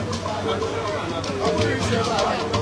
Thank you.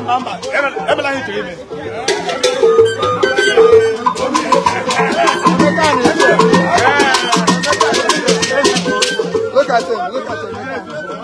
Look at him, look at him.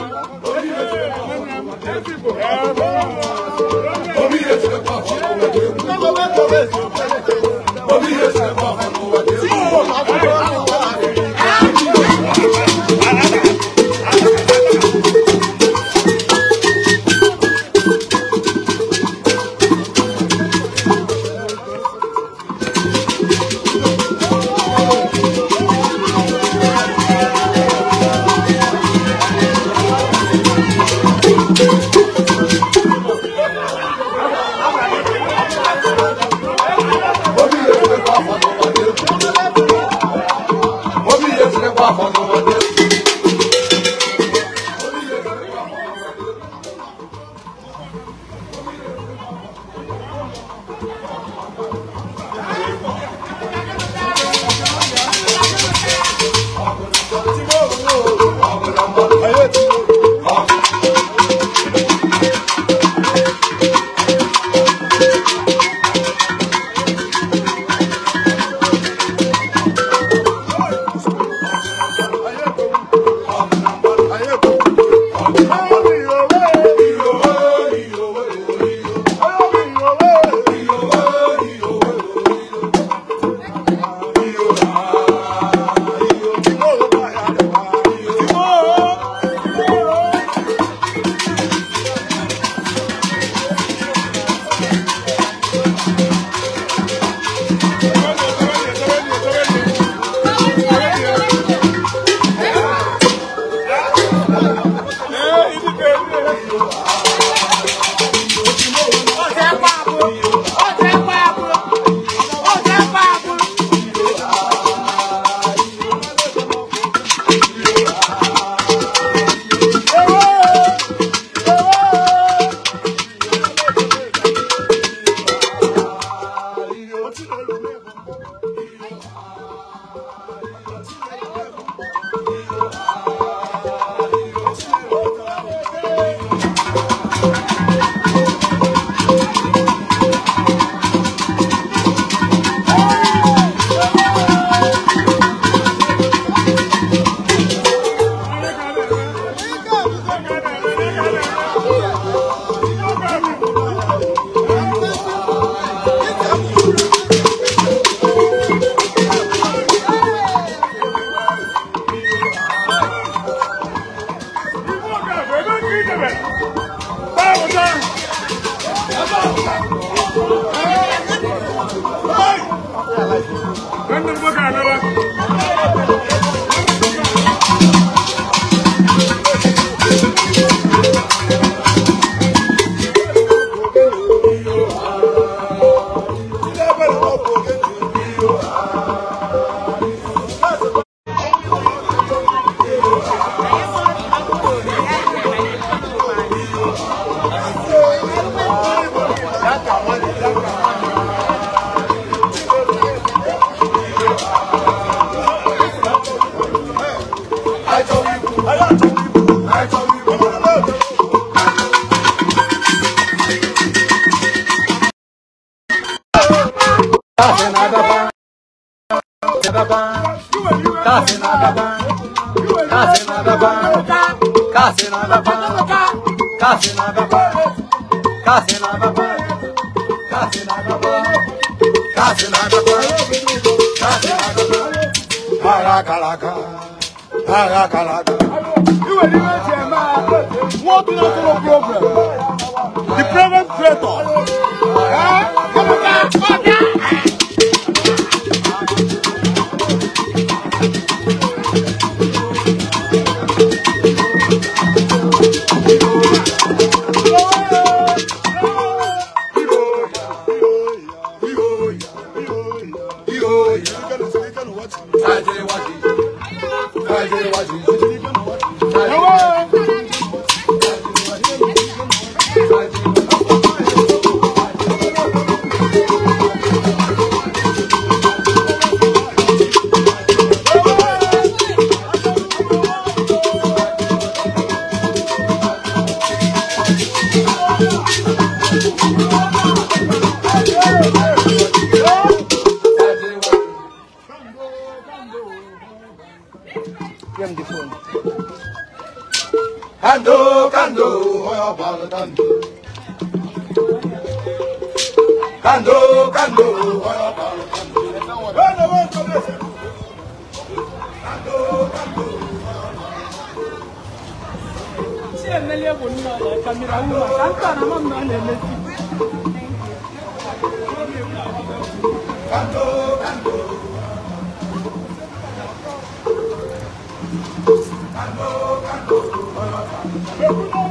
What do you know problem? The problem creator. Eh? Thank you.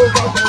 over.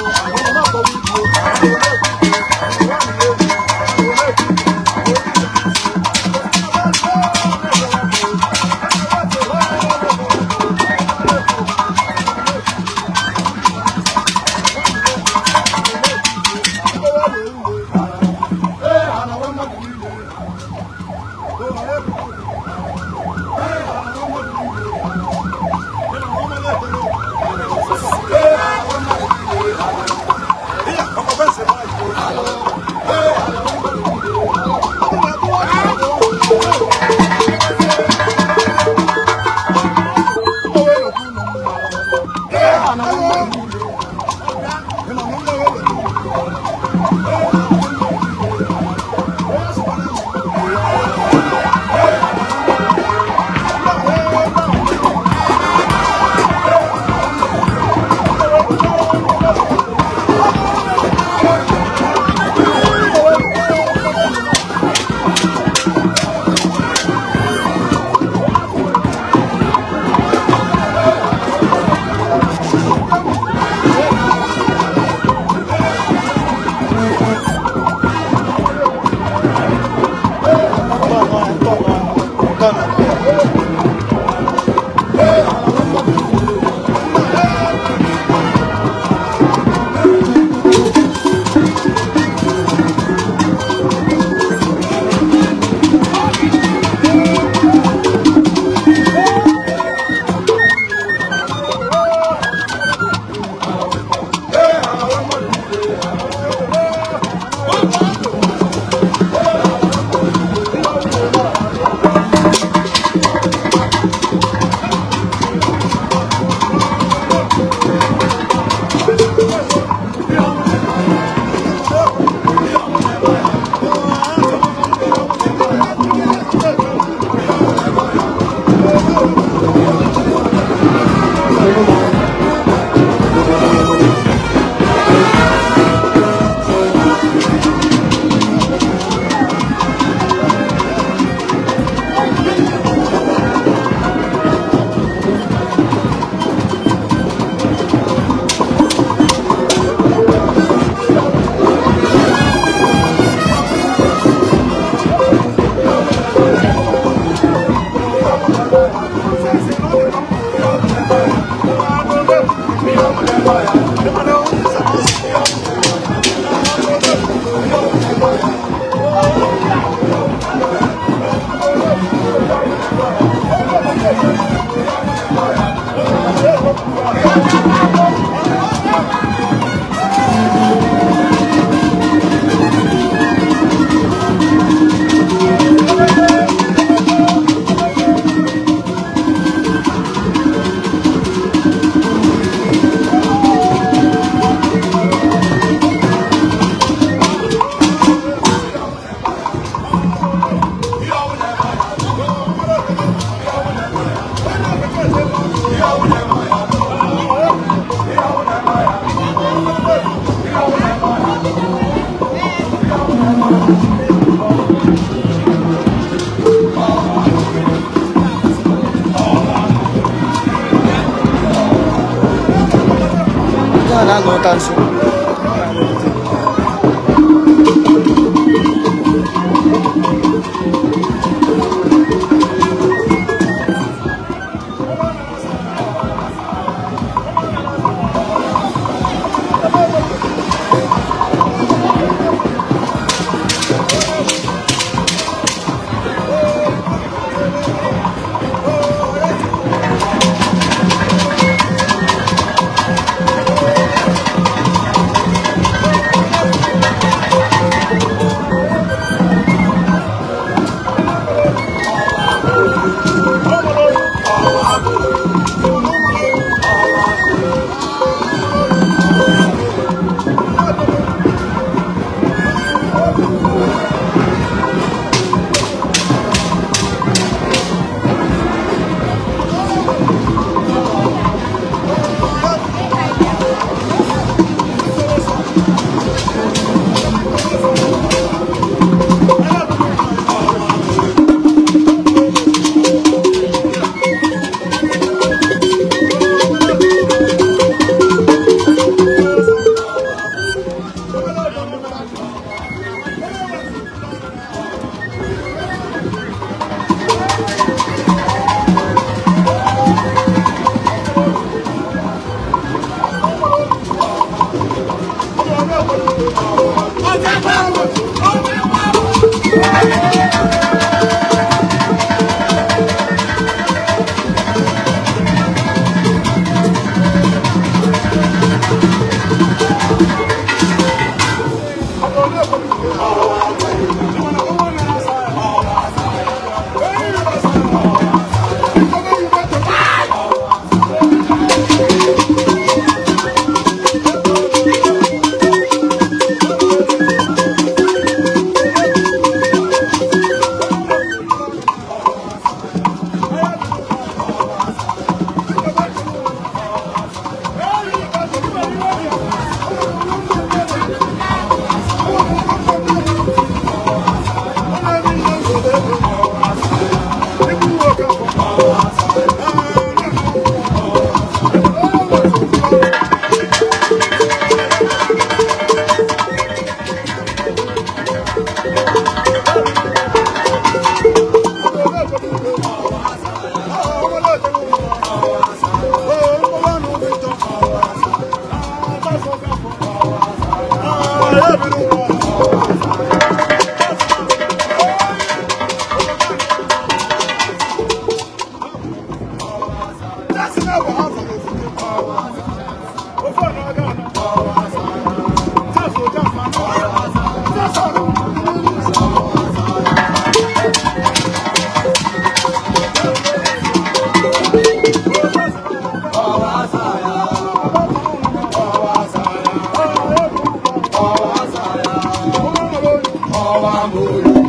amor.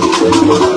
これ。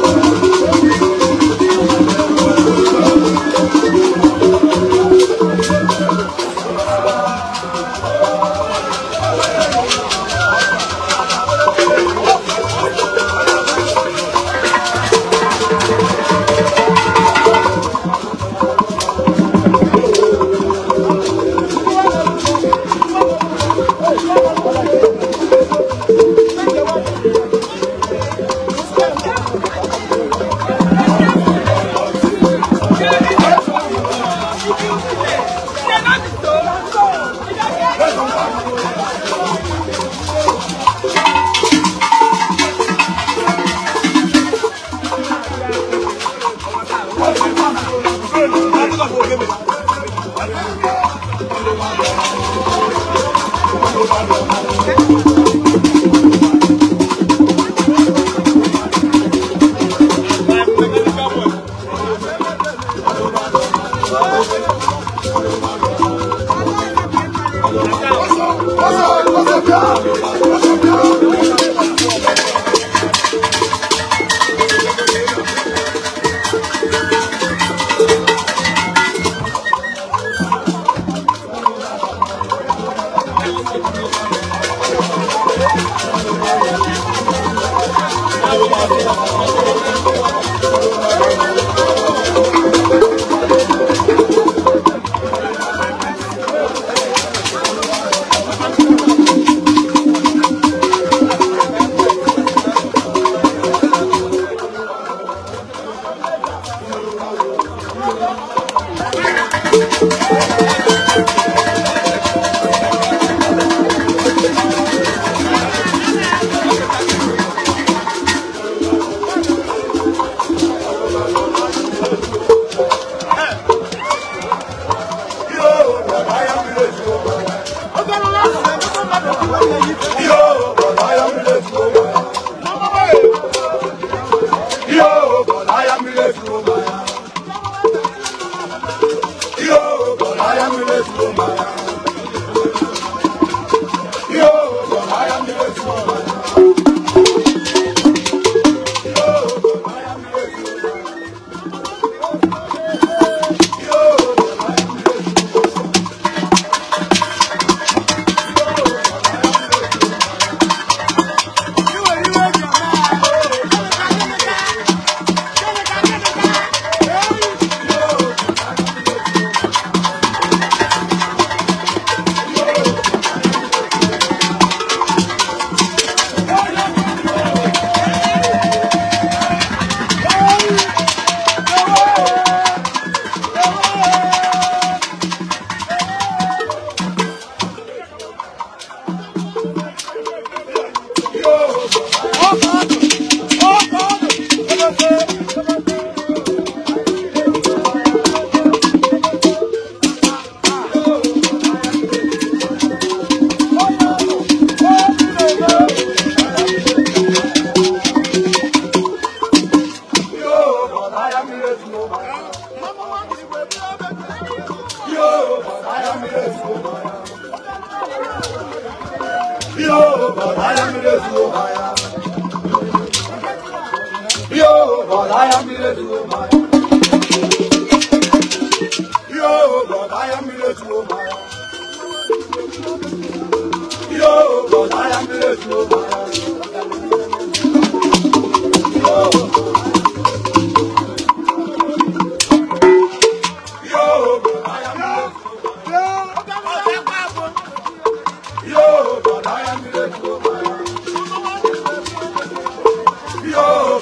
Thank you.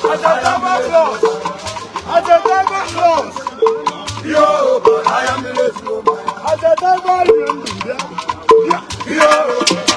blood. Ajagaba blood. Ajagaba blood. Yo, but I am the late woman. Ajagaba Yo. Yeah.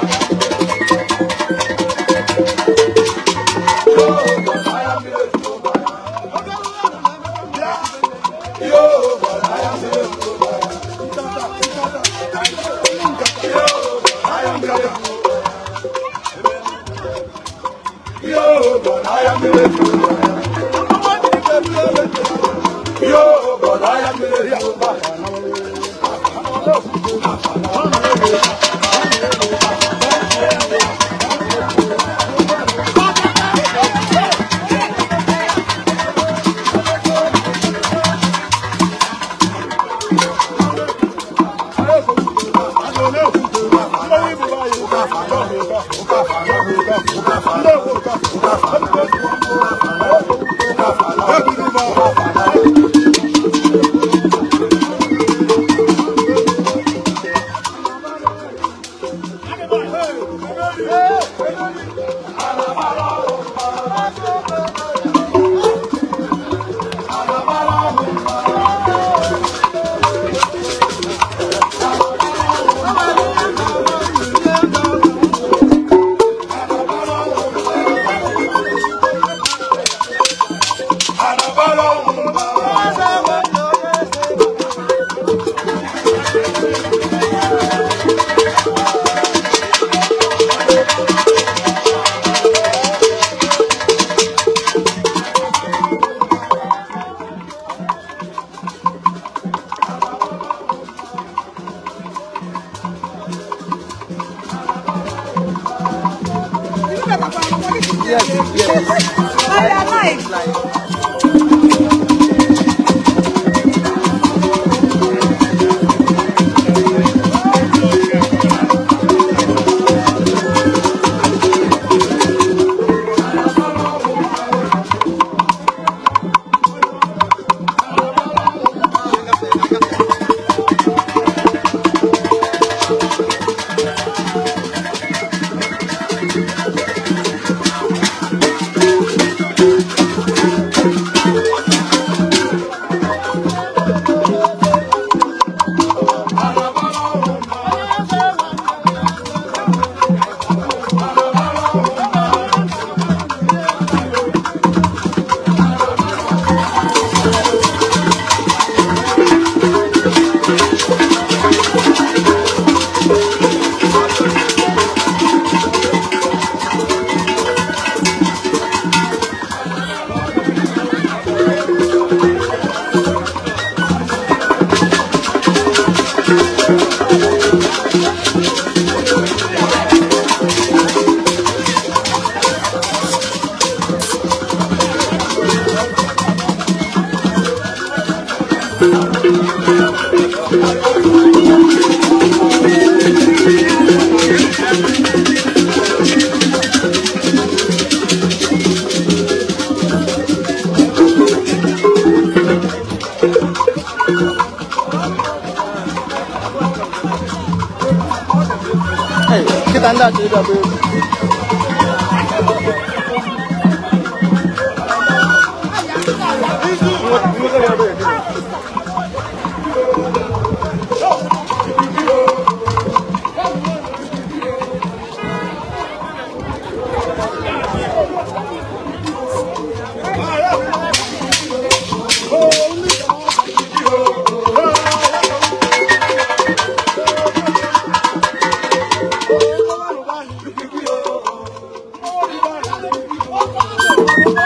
Oh,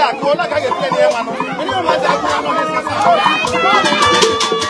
ya ko la ka ke tele ma no ni ma ja ko no ni sa sa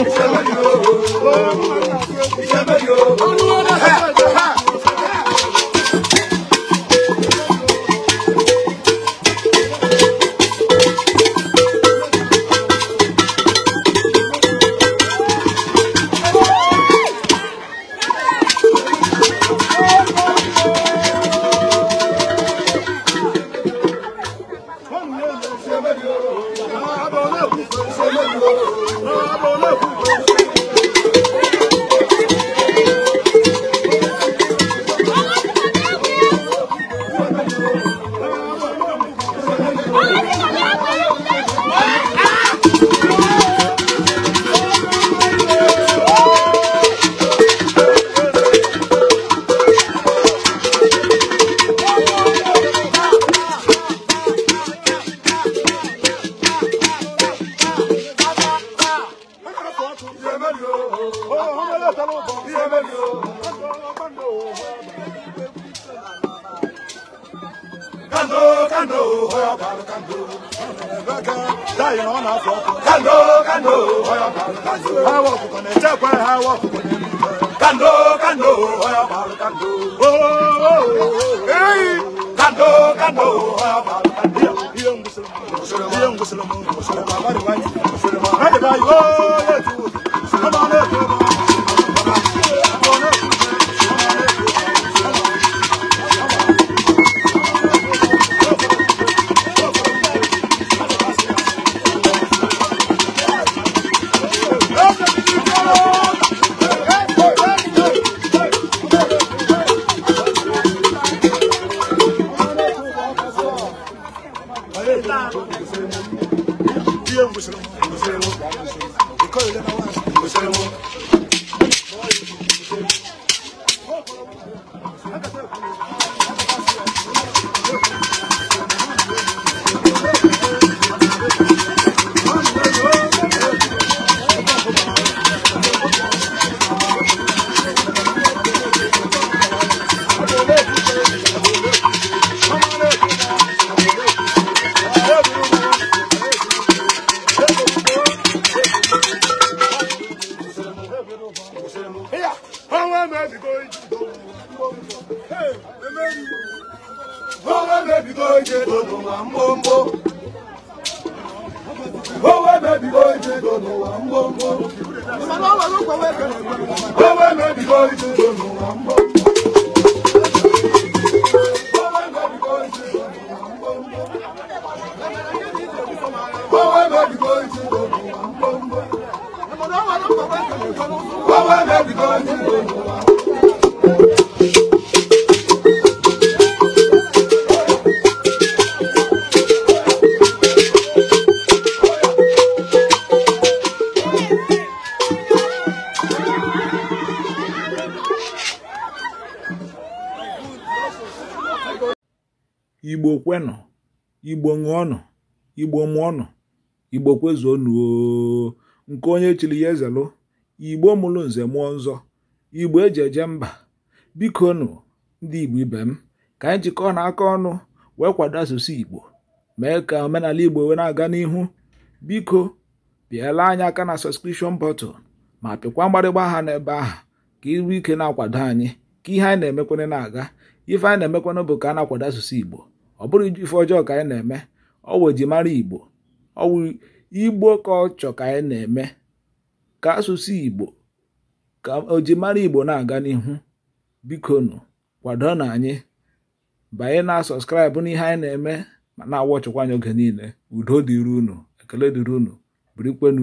Oh, se lo ọnụ igbo kwezuo nuo nke onye chiri ya ezelụ igbo mụrụ nze mụọ nzọ igbo eji eje mba biko nụ ndị igbo ibe m ka anyị jikọọ na aka ọnụ wee kwado asụsụ igbo mee ka omenala igbo wee na-aga n'ihu biko pịala anyị aka na sọskrishọn bọtụl ma pịkwa mgbarịgba aha n'ebe ahụ ka iru ike na-akwado anyị ka ihe anyị na-emekwana na-aga ife anyị na-emekwana bụ ka a na-akwado asụsụ igbo ọ bụrụ ife ọjọọ ka anyị na-eme ọwụ ejimara igbo ọwụ igbo ka ọ ka anyị na-eme ka asụsụ igbo ka ojimara igbo na-aga n'ihu bikonu kwado na anyị banye na sọskraịbụ n'ihe anyị na-eme ma na-awọchịkwa anyị oge niile udo dịrị unu ekele dịrị unu